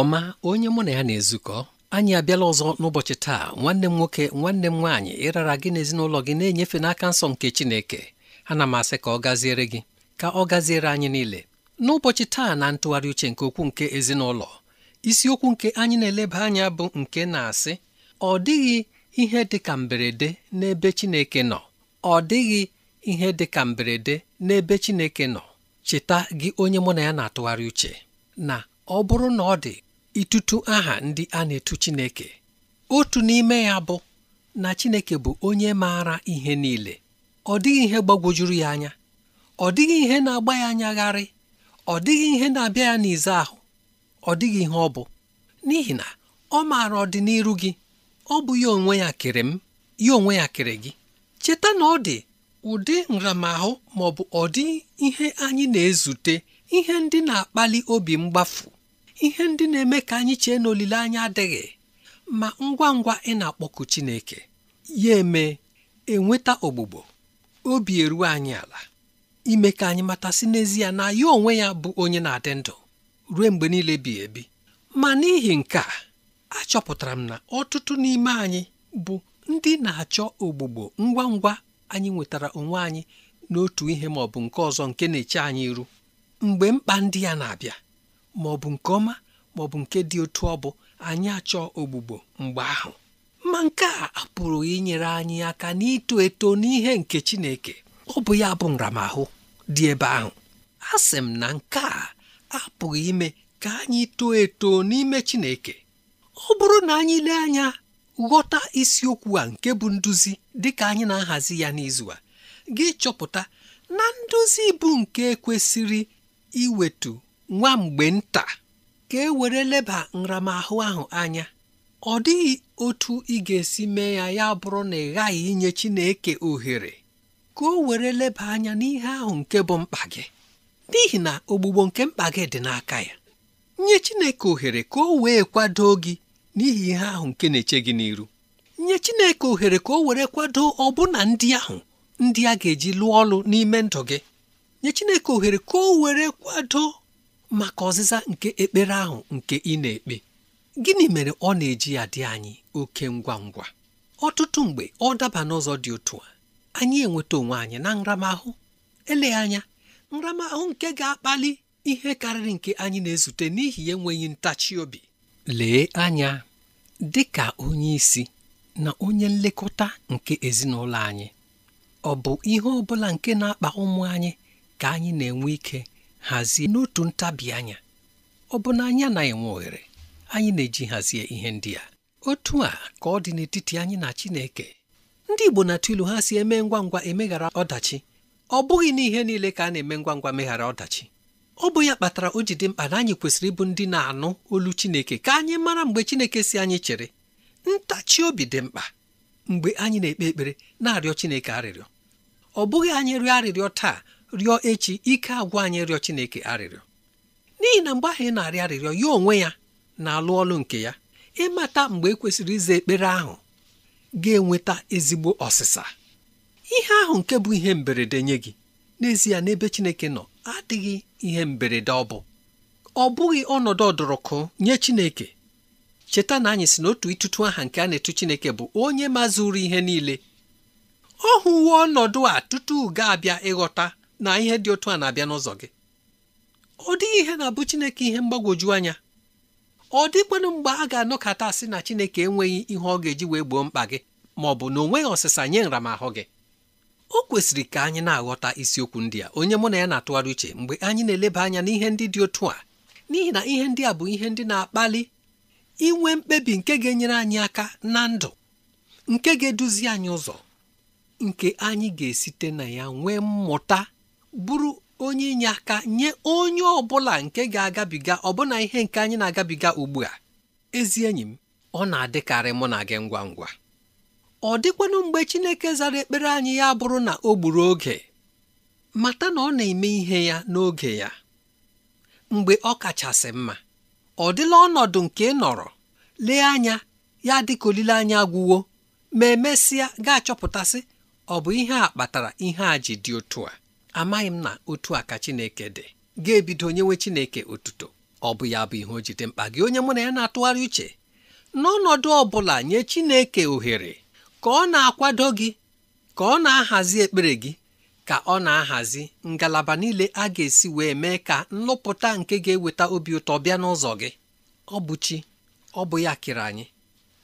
ọma onye mụ na ya na-ezukọ anyị abịala ọzọ n'ụbọchị taa nwanne m nwoke nwanne m nwaanyị ịrara gị na ezinụlọ gị na-enyefe n'aka nsọ nke Chineke ana m asị ka ọ gaziere gị ka ọ gaziere anyị niile n'ụbọchị taa na ntụgharị uche nke okwu nke ezinụlọ isiokwu nke anyị na-eleba anya bụ nke na-asị ọ dịghị ihe dị ka mberede n'ebe Chineke nọ ọ dịghị ihe dị ka mberede n'ebe Chineke nọ cheta gị onye mụ na ya na-atụgharị uche na ọ bụrụ na ọ dị ịtụtụ aha ndị a na-etu Chineke otu n'ime ya bụ na Chineke bụ onye maara ihe niile ọ dịghị ihe gbagwojuru ya anya ọ dịghị ihe na-agba ya anyagharị ọ dịghị ihe na-abịa ya n'ize ahụ ọ dịghị ihe ọ bụ n'ihi na ọ maara ọdịnihu gị ọ bụ ya onwe ya kere m ya onwe ya kere gị cheta na ọ dị ụdị nramahụ maọbụ bụ ọdị ihe anyị na-ezute ihe ndị na-akpali obi mgbafu ihe ndị na-eme ka anyị chee na olileanya adịghị ma ngwa ngwa ị na akpọkụ Chineke ya eme enweta ogbugbo obi eruo anyị ala ime ka anyị matasị n'ezie na ya onwe ya bụ onye na-adị ndụ ruo mgbe niile bi ebi ma n'ihi nke a achọpụtara m na ọtụtụ n'ime anyị bụ ndị na-achọ ogbugbo ngwa ngwa anyị nwetara onwe anyị n'otu ihe ma ọ bụ nke ọzọ nke na-eche anyị iru mgbe mkpa ndị ya na-abịa ma ọ bụ nke ọma ma ọ bụ nke dị otu ọ bụ anyị achọ ogbugbo mgbe ahụ ma nke a apụrụ inyere anyị aka n'ito eto n'ihe nke Chineke ọ bụ ya bụ nramahụ dị ebe ahụ a sị m na nke a apụghị ime ka anyị too eto n'ime Chineke ọ bụrụ na anyị lee anya ghọta isiokwu a nke bụ nduzi dị ka anyị na-ahazi ya n'izu a gị chọpụta na nduzi bụ nke kwesịrị iwetu nwa mgbe nta ka e were leba nramahụ ahụ anya ọ dịghị otu ị ga-esi mee ya ya bụrụ na ị ghaghị inye Chineke ohere ka o were leba anya n'ihe ahụ nke bụ mkpa gị n'ihi na ogbugbo nke mkpa gị dị n'aka ya nye Chineke ohere ka o wee kwado gị n'ihi ihe ahụ nke na-eche gị n'iru nye Chineke ohere ka o were kwado ọbụna ndị ahụ ndị a ga-eji lụọ ọlụ n'ime ndụ gị nye Chineke ohere ka o were kwado maka ọzịza nke ekpere ahụ nke ị na-ekpe gịnị mere ọ na-eji ya dị anyị oke ngwa ngwa ọtụtụ mgbe ọ daba n'ụzọ dị otu a anyị enweta onwe anyị na nramahụ Ele anya nramahụ nke ga-akpali ihe karịrị nke anyị na-ezute n'ihi enweghị ntachi obi lee anya dị ka onye isi na onye nlekọta nke ezinụlọ anyị ọ bụ ihe ọ bụla nke na-akpa ụmụ anyị ka anyị na-enwe ike hazie n'otu ntabi anya ọ bụ na anyị anaghị enwe ohere anyị na-eji hazie ihe ndị a otu a ka ọ dị n'etiti anyị na Chineke ndị Igbo na-atụ ha si eme ngwa ngwa emeghara ọdachi ọ bụghị n'ihe niile ka a na-eme ngwa ngwa meghara ọdachi ọ bụ ya kpatara o ji dị mkpa na anyị kwesịrị ịbụ ndị na-anụ olu Chineke ka anyị mara mgbe Chineke si anyị chere ntachi obi dị mkpa mgbe anyị na-ekpe ekpere na-arịọ Chineke arịrịọ ọ bụghị anyị rịọ arịrịọ taa rịọ echi ike agwa anyị rịọ Chineke arịrịọ n'ihi na mgbe ahụ ị na arị arịrịọ ya onwe ya na-alụ ọlụ nke ya ịmata mgbe ekwesịrị ize ekpere ahụ ga-enweta ezigbo ọsịsa ihe ahụ nke bụ ihe mberede nye gị n'ezie n'ebe Chineke nọ adịghị ihe mberede ọ bụ ọ bụghị ọnọdụ ọdụrụkụ nye Chineke cheta na anyị si n'otu ịtụtụ aha nke a na-etu Chineke bụ onye mazuru ihe niile ọ hụwo ọnọdụ a tutu ga-abịa ịghọta na ihe dị otu a na-abịa n'ụzọ gị ọ dịghị ihe na-abụ Chineke ihe mgbagwoju anya ọ dịkwanụ mgbe a ga-anọkọta asị na Chineke enweghị ihe ọ ga-eji wee gboo mkpa gị ma ọ bụ na onweghị ọsịsa nye nramahụ gị o kwesịrị ka anyị na-aghọta isiokwu ndị a onye mụ na ya na-atụgharị uche mgbe anyị na-eleba anya n'ihe ndị dị otu a n'ihi na ihe ndị a bụ ihe ndị na-akpali inwe mkpebi nke ga-enyere anyị aka na ndụ nke ga-eduzi anyị ụzọ nke anyị ga-esite na ya nwee mmụta bụrụ onye inye aka nye onye ọbụla nke ga-agabiga ọbụna ihe nke anyị na-agabiga ugbu a ezi enyi m ọ na-adịkarị mụ na gị ngwa ngwa ọ dịkwanụ mgbe Chineke zara ekpere anyị ya bụrụ na o gburu oge mata na ọ na-eme ihe ya n'oge ya mgbe ọ kachasị mma ọ dịla ọnọdụ nke ị nọrọ lee anya ya dịka olileanya gwụwo ma emesịa ga-achọpụtasị ọ bụ ihe a kpatara ihe a ji dị otu a amaghị m na otu a ka Chineke dị ga-ebido nyewe Chineke otuto ọ bụ ya bụ ihe o jide mkpa gị onye mụ na ya na-atụgharị uche n'ọnọdụ ọ bụla nye Chineke ohere ka ọ na-akwado gị ka ọ na-ahazi ekpere gị ka ọ na-ahazi ngalaba niile a ga-esi wee mee ka nlụpụta nke ga-eweta obi ụtọ bịa n'ụzọ gị ọ bụ chi ọ bụ ya kere anyị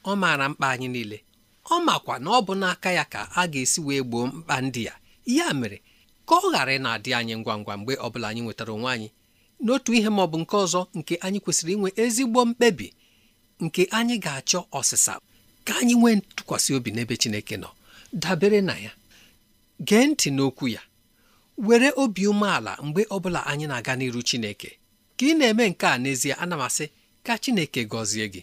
ọ maara mkpa anyị niile ọ makwa na ọ bụ n'aka ya ka a ga-esi wee gboo mkpa ndị ya ya mere ka ọ ghara na-adị anyị ngwa ngwa mgbe ọ bụla anyị nwetara onwe anyị n'otu ihe ma ọ bụ nke ọzọ nke anyị kwesịrị inwe ezigbo mkpebi nke anyị ga-achọ ọsịsa ka anyị nwee ntụkwasị obi n'ebe Chineke nọ dabere na ya gee ntị n'okwu ya were obi umeala mgbe ọbụla anyị na-aga n'iru Chineke ka ị na-eme nke a n'ezie ana m asị ka Chineke gọzie gị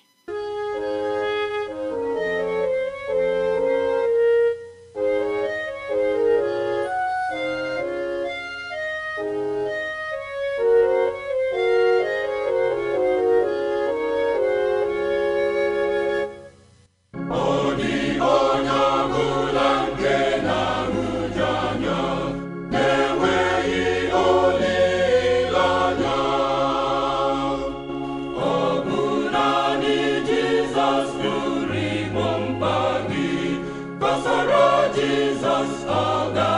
jesus ọ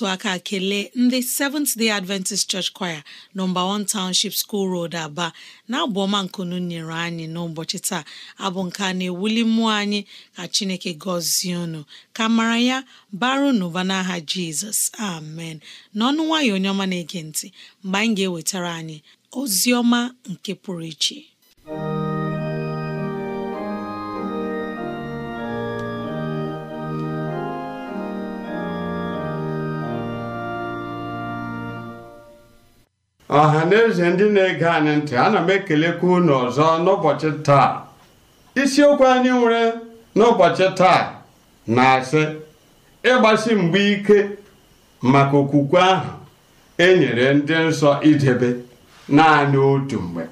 otu aka kelee ndị Seventh Day Adventist Church Choir nọmba 1 Township School Road Aba na-abụ ọma nkunu nyere anyị n'ụbọchị taa abụ nke a na-ewuli mmụọ anyị ka Chineke gọzie unu ka mara ya baru n'ụba n'aha Jizọs amen n'ọnụ nwayọ onye ọma na-ege ntị mgbe anyị ga-ewetara anyị ozi ọma nke pụrụ iche ọha na eze ndị na-ege anyị ntị ana m ekelekwa unu ọzọ n'ụbọchị taa isiokwu anyị nwere n'ụbọchị taa na-asị ịgbasi mgbe ike maka okwukwe ahụ e nyere ndị nsọ idebe naanị otu mgbe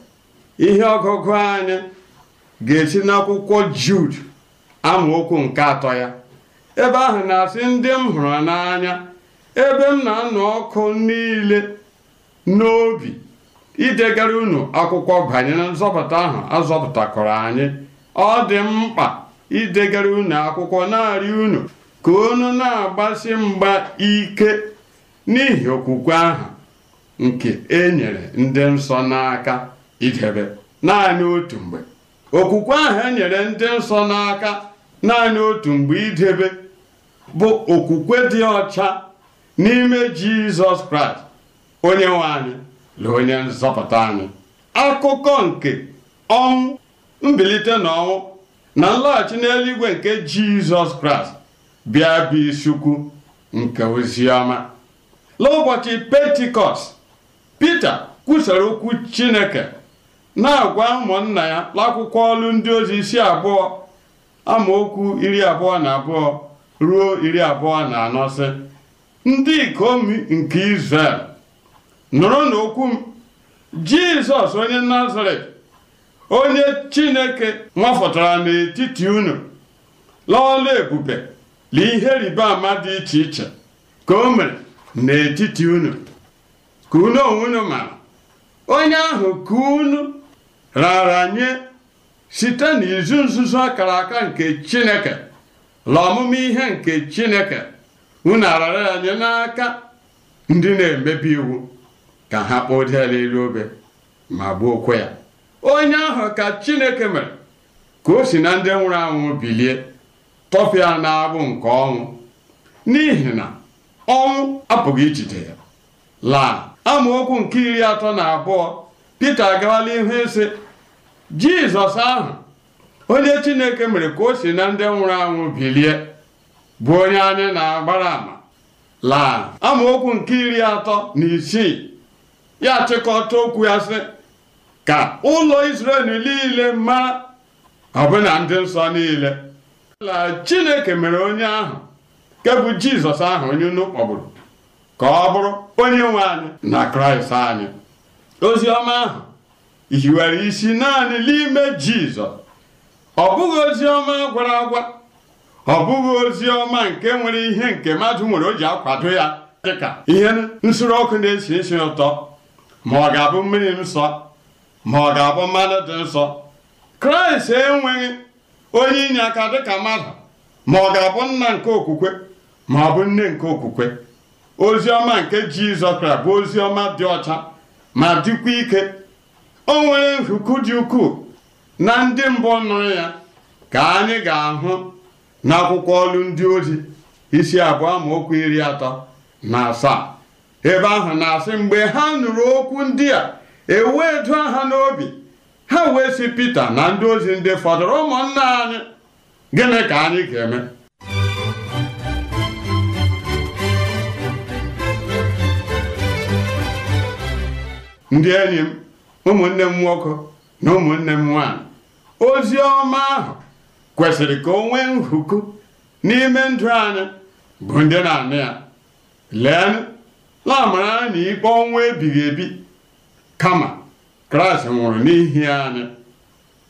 ihe ọgụgụ anyị ga-esi n'akwụkwọ Jud amaokwu nke atọ ya ebe ahụ na-asị ndị m hụrụ n'anya ebe m na-anụ ọkụ niile n'obi idegara unu akwụkwọ banyere nzọpụta ahụ azọpụtakọrọ anyị ọ dị mkpa idegara unu akwụkwọ narị unu ka unu na-agbasi mgba ike n'ihi okwukwe ahụ nke e nyere ndị nsọ n'aka idebe naanị otu mgbe okwukwe ahụ enyere ndị nsọ n'aka naanị otu mgbe idebe bụ okwukwe dị ọcha n'ime Jizọs Kraịst onye nwe anyị na onye nzọpụta anyị akụkọ nke ọnwụ mbilite na ọnwụ na nlọghachi n'eluigwe nke jizọs kraịst bịa bụ isiukwu nke oziọma n'ụbọchị pentikọst pita kwusara okwu chineke na-agwa ụmụnna ya n'akwụkwọ ọlụ ndị ozi isi abụọ amaokwu iri abụọ na abụọ ruo iri abụọ na anọ ndị ikom nke izrel nụrụ n'okwu m jizọs onye nazaret onye chineke nwafọtara n'etiti unu lọọla ebube na ihe rịba ama dị iche iche ka o mere n'etiti unu ka unu onwe unu onye ahụ ka unu raara nye site n'izu nzuzo akara aka nke chineke la ọmụma ihe nke chineke unu arara ya n'aka ndị na-emebi iwu ka ha kpọjee ya elu obe ma gbuo okwe ya onye ahụ ka chineke mere ka o si na ndị nwụrụ anwụ bilie tọfịa na-abụ nke ọnwụ n'ihi na ọnwụ apụghị ijide ya laa amaokwu nke iri atọ na abụọ Pita agawala ihu ise Jizọs ahụ onye Chineke mere ka o si na ndị nwụrụ anwụ bilie bụ onye anyị na-agbara ama laa amaokwu nke iri atọ na isii ya chịkọta okwu ya sị ka ụlọ Israel niile mara ọbụna ndị nsọ niile la Chineke mere onye ahụ nke bụ Jizọs ahụ onye unu kpọgburu ka ọ bụrụ onye nwe anyị na Kraịst anyị ozi ọma ahụ hiwere isi naanị n'ime Jizọs ọ bụghị ozi ọma gwara agwa ọ bụghị ozi ọma nke nwere ihe nke mmadụ nwere o ji akwado ya dịka ihe nsuru ọkụ na-esi isi ụtọ ma ọ ga-abụ mmiri nsọ ma ọ ga-abụ mmanụ dị nsọ kraịst enweghị onye inye aka dịka mmadụ ma ọ ga-abụ nna nke okwukwe ma ọ bụ nne nke okwukwe ozi ọma nke jizọs kraịst bụ ozi ọma dị ọcha ma dịkwa ike o nwere nhuku dị ukwuu na ndị mbụ nụrụ ya ka anyị ga-ahụ n'akwụkwọ ọlụ ndị ozi isi abụọ okwu iri atọ na asaa ebe ahụ na-asị mgbe ha nụrụ okwu ndị a ewee du ha n'obi ha wee sị Pita na ndị ozi ndị fọdụrụ ụmụnna anyị gịnị ka anyị ga-eme ndị enyi m ụmụnne m nwoke na ụmụnne m nwaanyị ozi ọma ahụ kwesịrị ka o nwee n'ime ndụ anyị bụ ndị na anị ya lee na-amara na ikpe ọnwụ ebighị ebi kama kraịst nwụrụ n'ihi anyị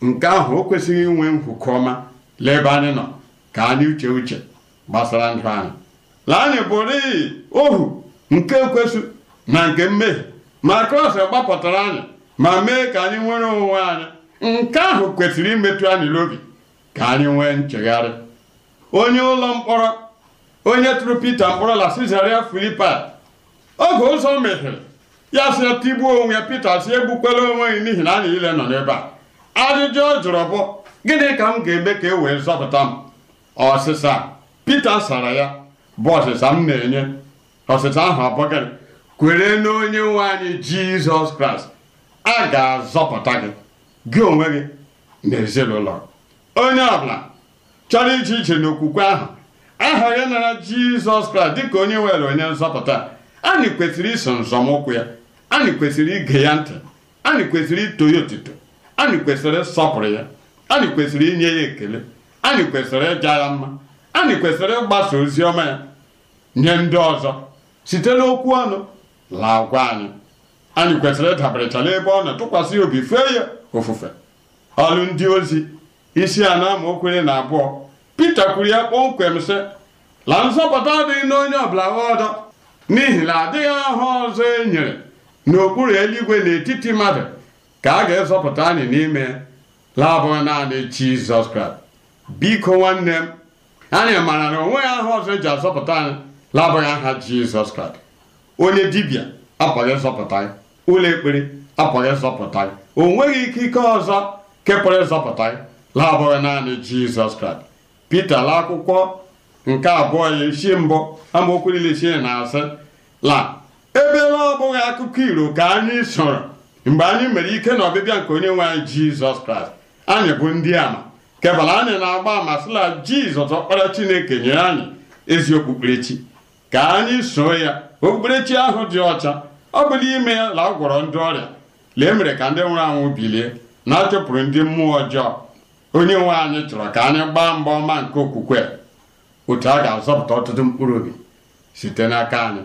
nke ahụ o kwesịghị inwe nkwukọ ọma leba anyị nọ ka anyị uche uche gbasara ndụ anyị na anyị bụrụ iyi ohu nke kwesị na nke mmehie ma kraịst gbapụtara anyị ma mee ka anyị nwere onwe anyị nke ahụ kwesịrị imetụ anyị n'obi ka anyị nwee nchegharị onye ụlọ mkpọrọ onye tụrụ peter mkpọrọ la sizaria filipai oge ụzọ mepere ya si tigbuo onwe pite si egbukwere onwe gị n'ihi na anyị niile nọ n'ebe a ajụjụ ọ jụrụ bụ gịnị ka m ga-eme ka e wee zọpụta m ọsịsa Pita sara ya bụ ọsịsa m na-enye ọsịsa ahụ abụghị kwere na onye nwe anyị Jizọs Kraịst a ga-azọpụta gị gị onwe gị na ezinụlọ onye ọbụla chọrọ ije ije n'okwukwe ahụ aha ya nara Jizọs Kraịst dịka onye nwere onye nzọpụta anyị kwesịrị iso nzọmụkwụ ya anyị kwesịrị ige ya ntị anyị kwesịrị ito ya otito anyị kwesịrị ịsọpụrụ ya anyị kwesịrị inye ya ekele anyị kwesịrị ịja ya mma anyị kwesịrị ịgbasa ozi ọma ya nye ndị ọzọ site n'okwu ọnụ laa gwa anyị anyị kwesịrị ịdabarechala ebe ọ na-atụkwasị obi fee ya ofufe ọrụ ndị ozi isi a na amaokwere na abụọ Pita kwuru ya kpọmkwem sị la nzọpụta adịghị n'onye ọbụla ọdọ n'ihi na adịghị aha ọzọ e nyere n'okpuru eluigwe n'etiti mmadụ ka a ga-ezọpụta anyị n'ime laabụghị naanị Jizọs Kraịst biko nwanne m anyị maara na onweghị aha ọzọ eji azọpụta anyị laabụghị aha Jizọs Kraịst onye dibịa apụghị ịzọpụta anyị ụlọ ekpere apụghị ịzọpụta anyị o nweghị ikike ọzọ kepụrụ ịzọpụta anyị laabụghị naanị Jizọs Kraịst Pita ala akwụkwọ nke abụọ ya isi mbụ amaokwu niile isi na asị la ebe na ọ bụghị akụkọ iro ka anyị soro mgbe anyị mere ike na ọbịbịa nke onye nwe anyị jizọs kraịst anyị bụ ndị ama kebala anyị na-agba ama sịla jizọs ọkpara chineke nyere anyị ezi okpukperechi ka anyị soo ya okpukperechi ahụ dị ọcha ọ bụ n'ime ya la ọ gwọrọ ndị ọrịa lee mere ka ndị nwụrụ anwụ bilie na-achụpụrụ ndị mmụọ ọjọọ onye nwe anyị chọrọ ka anyị gbaa mgba ọma nke okwukwe otu a ga-azọpụta ọtụtụ mkpụrụ obi site n'aka anyị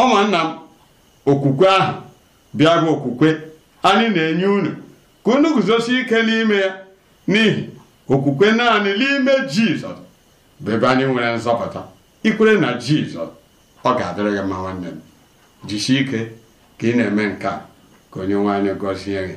ụmụnna m okwukwe ahụ bịa bụ okwukwe anyị na-enye unu ka unu guzosi ike n'ime ya n'ihi okwukwe naanị n'ime jizọs bụ ebe anyị nwere nzọpụta ikwere na jizọs ọ ga-adịrị gị mma nwanne m jisie ike ka ị na-eme nke a ka onye nwaanyị gọzie gị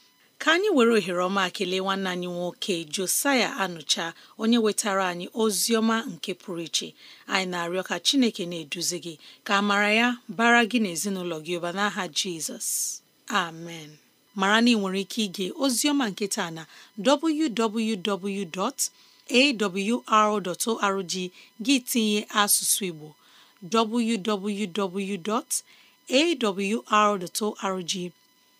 ka anyị were ohere ọma kelee nwanne anyị nwoke Josaya Anụcha onye wetara anyị ozi ọma nke pụrụ iche anyị na-arịọ ka Chineke na-eduzi gị ka a mara ya bara gị na ezinụlọ gị ụba n'aha Jizọs amen mara na ị nwere ike ige ozioma ọma nke taa na www.awr.org gị tinye asụsụ Igbo www.awr.org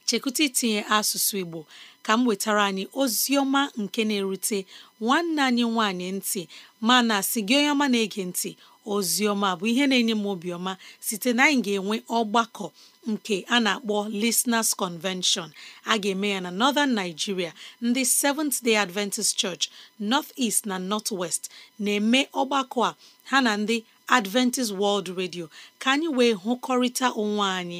chekwụta itinye asụsụ Igbo ka m wetara anyị ozi ọma nke na-erute nwanne anyị nwanyị ntị mana si gị onye ọma na-ege ntị ozi ọma bụ ihe na-enye m obiọma site na anyị ga-enwe ọgbakọ nke a na-akpọ Listeners Convention a ga-eme ya na Northern Nigeria ndị Seventh Day Adventist Church North East na North West na-eme ọgbakọ a ha na ndị Adventist World Radio ka anyị wee hụkọrịta onwe anyị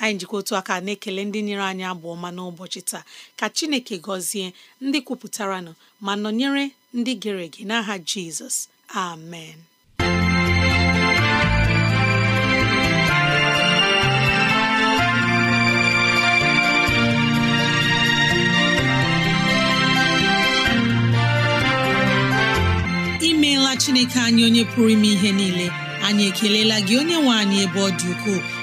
anyị njikọ otu aka na-ekele ndị nyere anyị abụ ọma n'ụbọchị taa ka chineke gọzie ndị kwupụtaranụ ma nọnyere ndị gere ege n'aha jizọs amen imeela chineke anyị onye pụrụ ime ihe niile anyị ekelela gị onye nwe anyị ebe ọ dị ukwuu